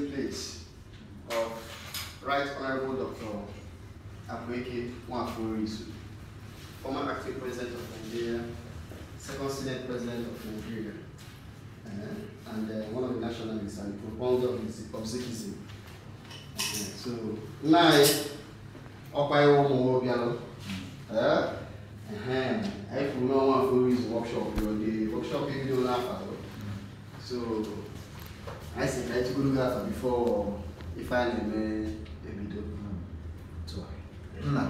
resting place of Right Honorable Dr. Abweke Mwafurisu, former acting president of Nigeria, second senate president of Nigeria, uh, and uh, one of the nationalists and proponent of Sikhism. Uh, so, nine, Okwayo Mwobialo, uh, uh-huh. uh-huh I know one of workshop, the workshop you do laugh at. So, anyị si ka anyị chịgoro gị afa bifo ife anyị na-eme ebido nna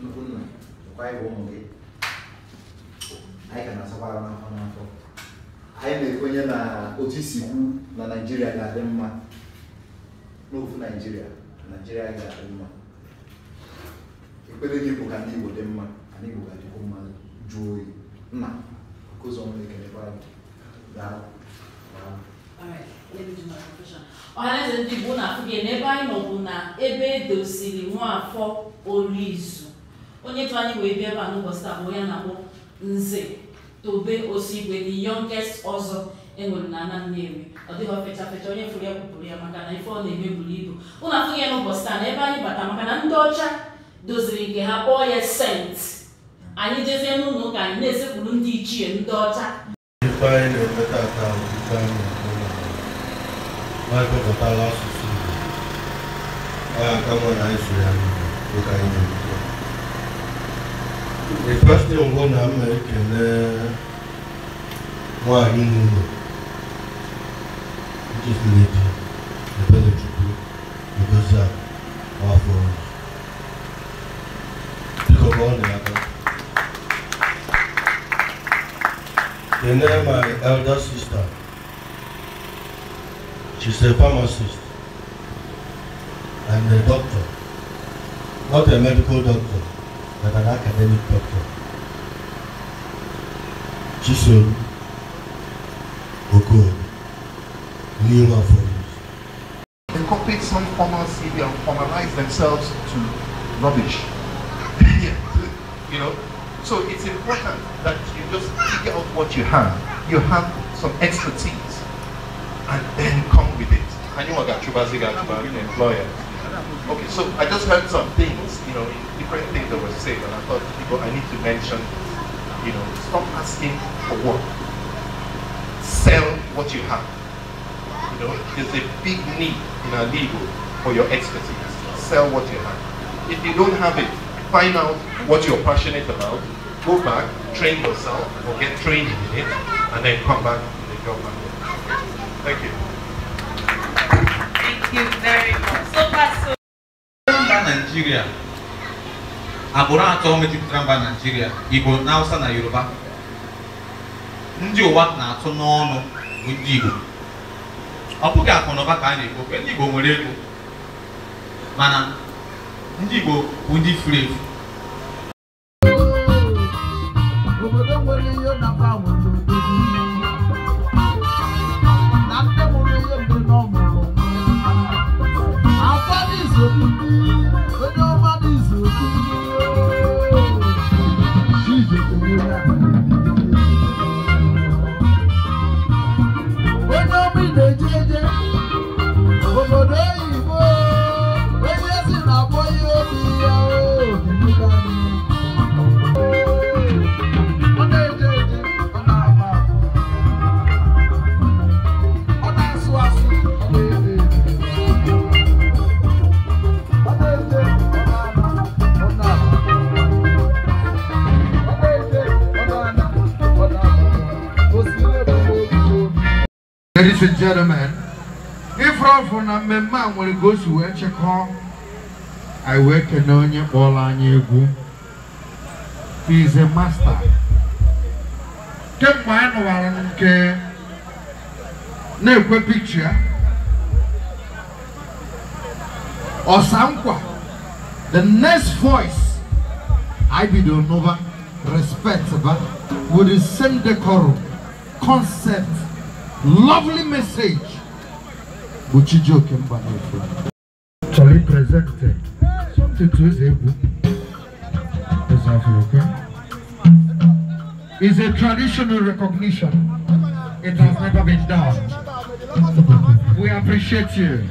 nnukwu nna kwa ịbụ ụmụ gị anyị ka na-asakwara n'afọ n'afọ anyị na-ekwenye na otu isi kwu na naijiria ga-adị mma n'ofu naijiria naijiria ga-adị mma ekpere igbo dị mma ka ndị igbo mma oyi nna nke ọhaneze ndị Igbo na-afụgị n'ebe anyị nọ bụ na ebe edosiri Nwafọ izu onye tụ anyị wee bịa ebe a n'ụbọchị taa bụ onye na-akpọ Nze Tobe Osigwe the youngest ọzọ enwere na ana ọ dịghị fecha fecha onye fụrụ ya kwupụrụ ya maka na ife ọ na-eme buru ibu ụlọ afụghị ya n'ụbọchị taa na ebe anyị bata maka na ndị ọcha doziri nke ha kpọọ ya sent anyị jezie n'ụlọ ụka anyị na-esekpuru ndị ichie ndị ọcha Vai completar lá o suicídio. Vai acabar isso, né? Vou cair no mundo. The first thing I'm gonna make is uh, why you know. Just uh, lady, the better to do, because that our my elder sister. She's a pharmacist and a doctor. Not a medical doctor, but an academic doctor. Chisom good, new offers. Incorporate some formal and formalize themselves to rubbish. you know, so it's important that you just figure out what you have. You have some expertise and then come employer. Okay, so I just heard some things, you know, different things that were said, and I thought, people, I need to mention, you know, stop asking for work. Sell what you have. You know, there's a big need in our legal for your expertise. Sell what you have. If you don't have it, find out what you're passionate about, go back, train yourself, or get trained in it, and then come back to the job market. Thank you. you very much. So far, so. Nigeria. Agbụrụ atọ mejupụtara mba Nigeria, Igbo na Hausa na Yoruba. Ndị ụwa na-atụ n'ọnụ bụ ndị Igbo. Ọ bụghị akụ na ụba ka a na-ekwu ndị Igbo nwere ego. Mana ndị Igbo bụ ndị furu efu. Obodo nwere ihe na Ladies and gentlemen, if from na mmemme a nwere ka to si wee chịkọọ anyị wee kene all kpọrọ anyị egwu he is a master kemgbe anyị nụwara nke na-ekwe pikcha ọsankwa the next voice anyị bidoro n'ụba respect ba with the same decorum concept lovely message which Buchijoke Mbanefra actually presented something to his is a traditional recognition it has never been done we appreciate you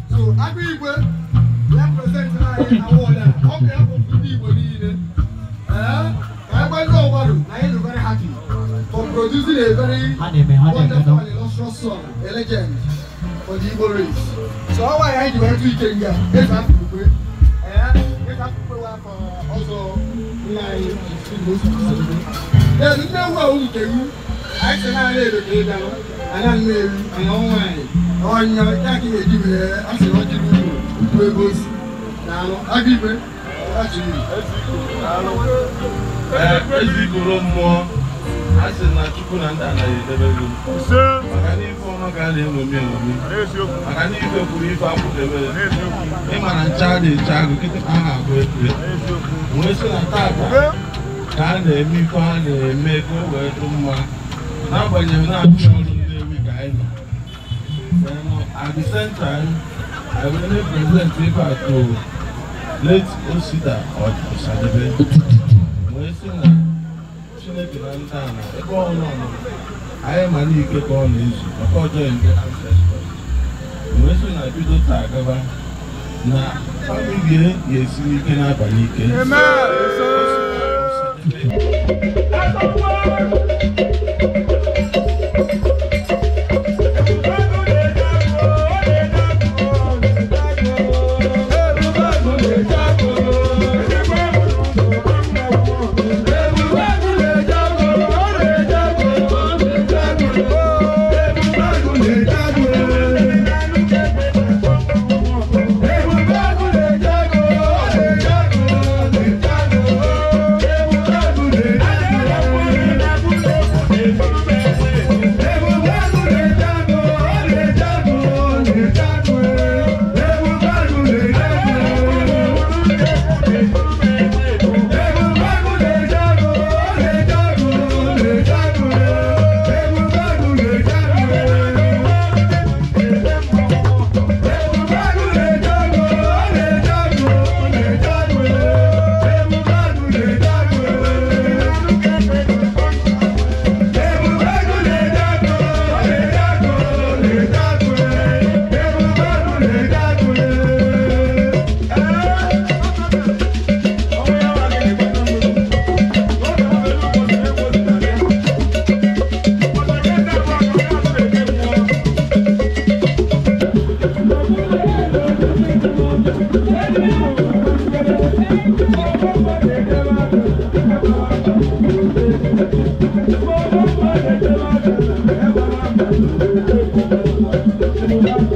so, Producing a very wonderful and illustrious song, a legend for the Igbo race. So how I hide went to Ikenga, eight half people, and eight half people were for also like most people. There is no Ezigoro mmụọ a sị na Chukwu na ndị anaghị edebere maka na ife ọma ka a na-eṅomi eṅomi maka na ife kwuru ife akwụdebere ịma na ncha a na-eche agụ kịtịkpa ha agụ ekpe. wee sị na tata ka a na-eme ife a na-eme ka o wee dị mma n'agbanyeghị na-achụ ọrụ ndị na-ewe ka anyị nọ at the same time I will ife atụ late Osita Ọsadebe wee sị na Chineke na ndị ala ebe ọnụ ọmụmụ anyị ma na ike ka ọ na-ezu ọjọọ ndụ ancestors wee na bido taa na famili ga-esiri ike n'abalị ike Thank you.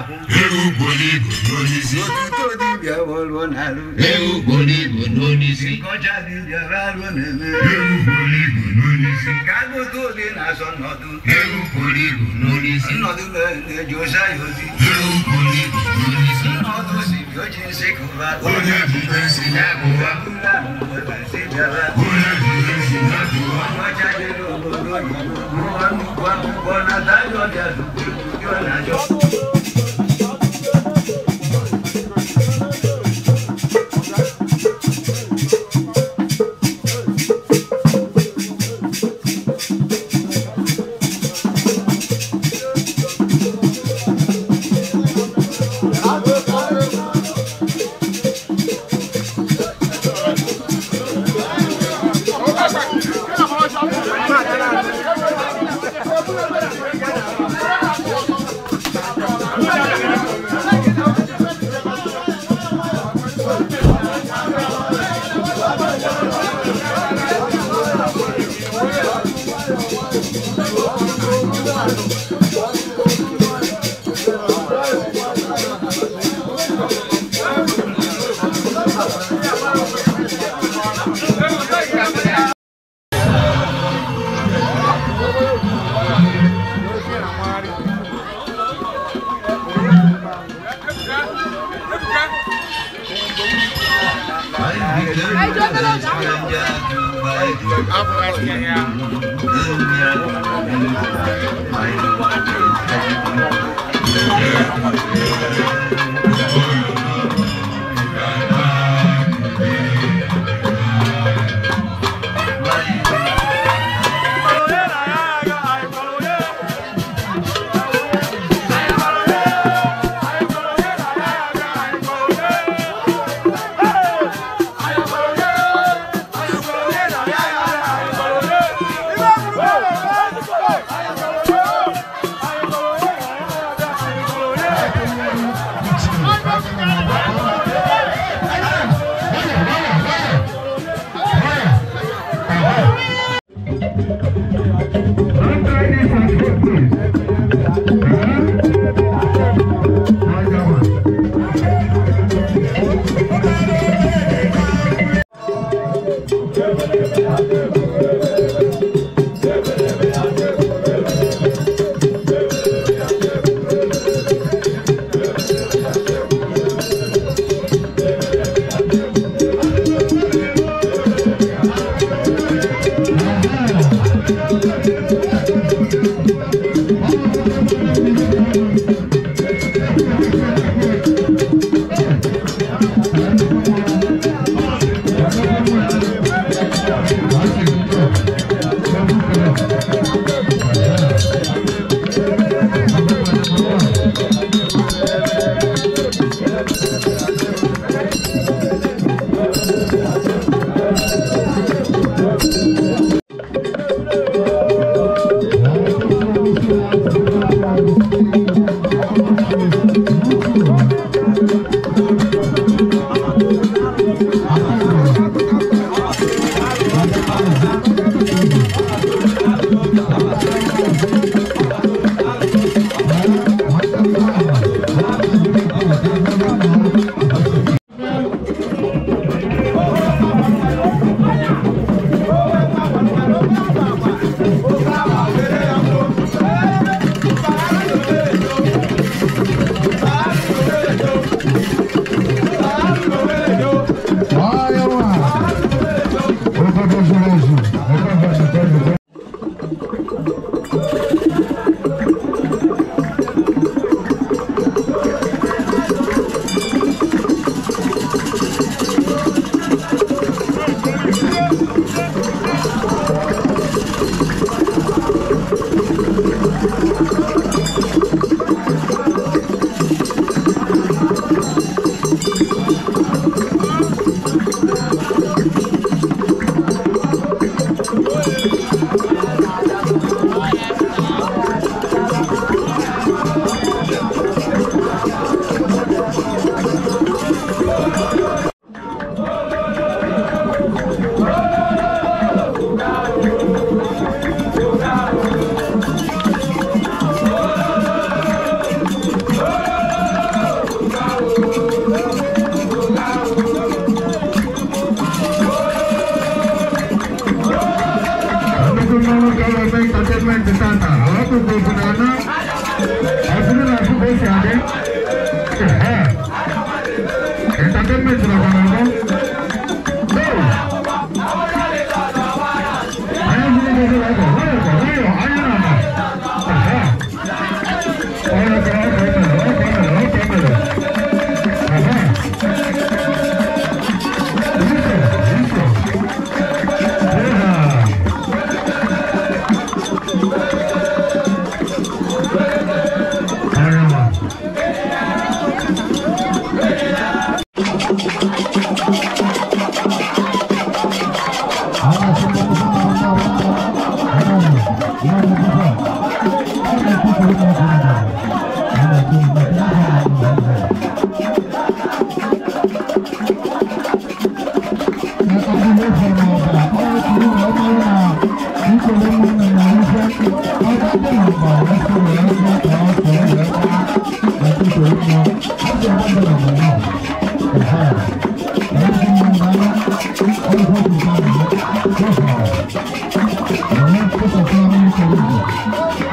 akwụ ewu gbonigbo n'onisi otuto dibịa wọlụọ n'alụ ewu gbonigbo n'onisi kọcha dibịa raruo n'eme ewu gbonigbo n'onisi ka agụta oge na-azọ nnọdụ ewu gbonigbo n'onisi nnọdụ na-eji ụsa ya ozi ewu gbonigbo n'onisi nnọdụ si bịa oji nsị kụba onye jide nsị ya kụba onye jide nsị Афганская. por ganar.